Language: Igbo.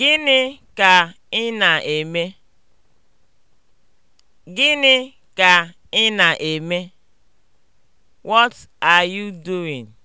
Gịnị ka ị na-eme? Gịnị ka ị na-eme? What are you doing?